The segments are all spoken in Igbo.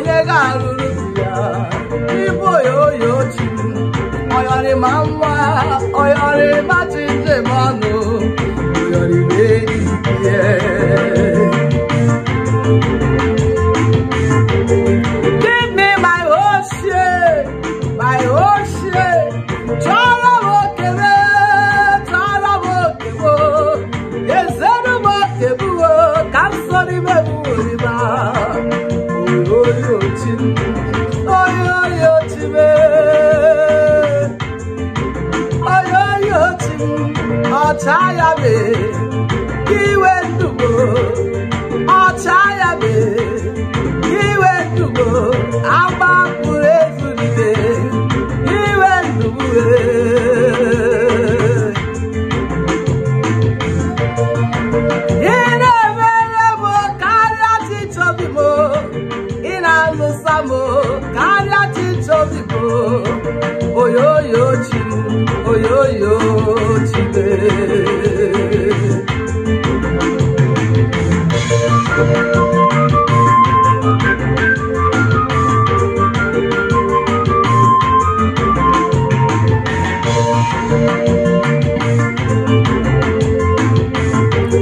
onye ga-arụrụ ya ibu oyoyo ochi ọyọrịma nwa ọyọrịma chi njem ọnụ ọyọrịma enyi ya ezigbo onye otu ọcha ya mee iwe ndubo ọcha ya mee iwe ndubo agba mkpụrụ ezulite iwe ndubo ị e. na-emere m karịa titobi m ị na-alụsa m oyoyo ti gbé.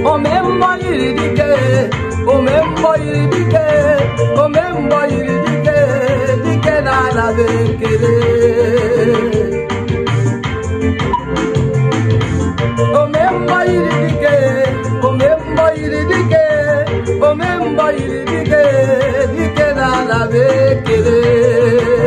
Ome mbọ yiri dike, dike, na ala bekele. Ay bir kenara bekledim